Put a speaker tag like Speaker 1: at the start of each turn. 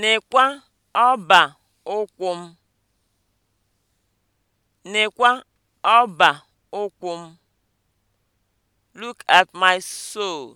Speaker 1: Nekwa ọba ụkwụ m. Nekwa ọba ụkwụ m. Look at my
Speaker 2: soul